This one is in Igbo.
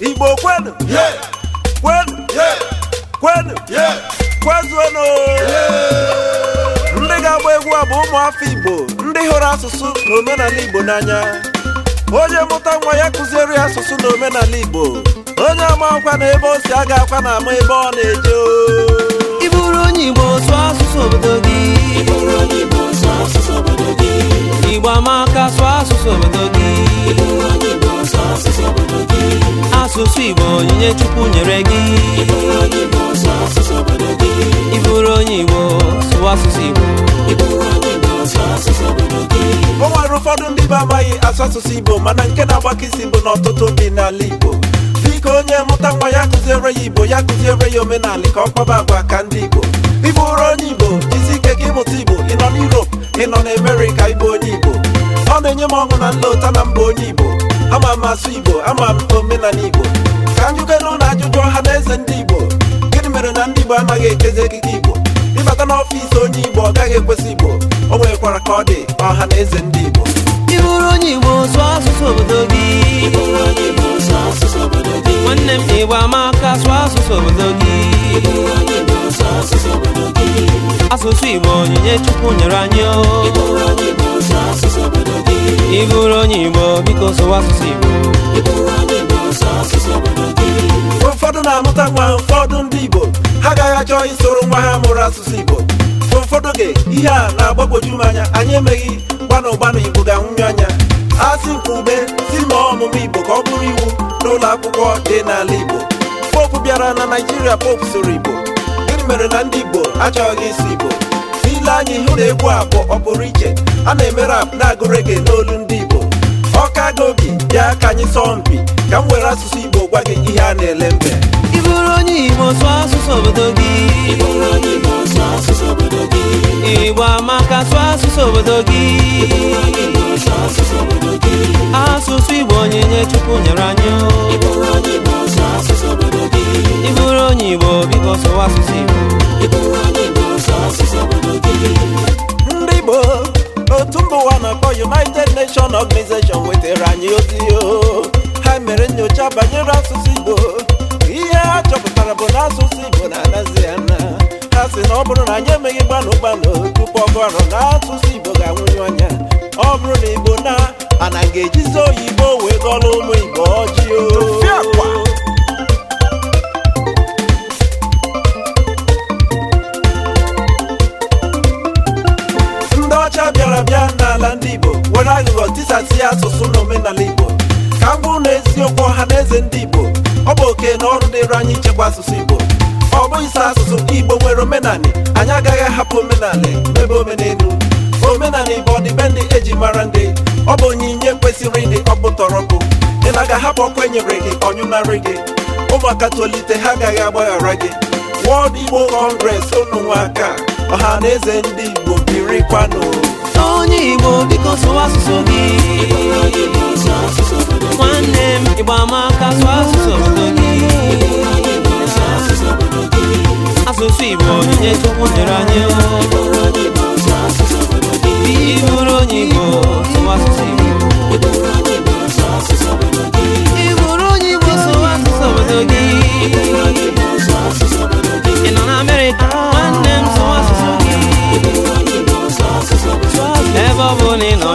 igbo kwenu kwenu kwenu kwezuonu ndị ga-agba egwu a bụ ụmụafọ igbo ndị hụrụ asụsụ na omenala igbo n'anya onye mụta nwa ya kụziere ya asụsụ na omenala igbo onye ama akwa na ebe o si aga akwa na ama ebe ọ na-eje Iburu onye igbo sụọ asụsụ obodo gị igbo ama onyinye chukwu nyere gị ịbụrụ onye igbo sụwa asụsụ igbo o nwere ụfọdụ ndị be amaghị asụ asụsụ igbo mana nke na-agbakisi bụ na ọtụtụ ndị n'ala igbo dịka onye mụta nwa ya kụziere ya igbo ya kụziere ya omenala ka ọ kpaba agwa ka ndị igbo ịbụrụ onye igbo isi ike gị ịmụta igbo ị nọ n'Europe ị nọ n'Amerika ịbụ onye igbo ọ na-enye m ọṅụ na nlọta na mba onye igbo ama m asụ igbo ama m omenala igbo ka m jụkere ụlọ ajụjụ ọha na eze ndị igbo gịnị mere na ndị igbo amaghị ekezi ekike igbo ịbata n'ọfịs onye igbo ọ gaghị ekwesị igbo o nwerekwara ka ọ dị ọha na eze ndị igbo ịbụrụ onye igbo sụọ asụsụ obodo gị nwanne m igbo ama aka sụọ asụsụ obodo gị asụsụ igbo onyinye chukwu nyere anyị oh. ịbụrụ onye igbo biko sụwa asụsụ igbo ụfọdụ na-amụta nwa ụfọdụ ndị Igbo ha agaghị achọ isoro nwa ha mụrụ asụsụ Igbo ụfọdụ oge ihe a na-agbagwoju m anya anyị emeghị gbanụ gbanụ Igbo ga-anwụnye anya a sị nkwa si ma ọmụmụ Igbo ka ọ bụrụ iwu n'ụlọ akwụkwọ dị n'ala Igbo popu bịara na Naịjirịa popu soro Igbo gịnị mere na ndị Igbo achọghị ịsụ Igbo n'ile anyị hụ na egwu a bụ pụrụ iche a na emere rap na-agụ rege n'olu ọkago gobi ya ka anyị sọọ mpi ka m were asụsụ Igbo gwa gị ihe a na-ele mbe ị bụrụ onye Igbo sụọ asụsụ obodo gị ị bụrụ onye Igbo sụọ asụsụ obodo gị Igbo amaka sụọ asụsụ obodo gị ị bụrụ onye Igbo sụọ asụsụ Chukwu nyere anyị ị onye Igbo biko sụwa asụsụ Igbo mba ụwa na-akpọ United Nations Organization wetara anyị ozi ha mere nyocha banyere asụsụ Igbo ihe ha chọpụtara bụ na asụsụ Igbo na-anazi ya na ha sị na ọ bụrụ na anyị emeghị gbanụ gbanụ tupu ọgụarụ na asụsụ Igbo ga-anwụnye anya ọ bụrụ na Igbo na ana ga-ejizi oyibo wee gọrọ ụmụ Igbo ọjị nsazi asụsụ na omenala Igbo ka bụrụ na eziokwu ọha na eze ndị Igbo ọ bụ oke na ọrụ dịịrị anyị ichekwa asụsụ Igbo ọ bụghị asụsụ asụsụ Igbo nwere omenala anyị agaghị ahapụ omenala n'ebe omenelu omenala Igbo ọdịbendị eji mara ndị ọ bụ onyinye kwesịrị ịdị ọkpụtọrọkpụ ị na-aga ahapụ ọkụ enyere gị ọnyụnarị gị ụmụaka tolite ha agaghị agbaghara gị World Igbo Congress ụnụnwa aka ọha na eze ndị Igbo birikwanụ onye igbo biko sụwa asụsụ gị nwanne m ịgba amaka sụọ asụsụ obodo gị asụsụ igbo onyinye chukwu nyere anyị I'm babuni no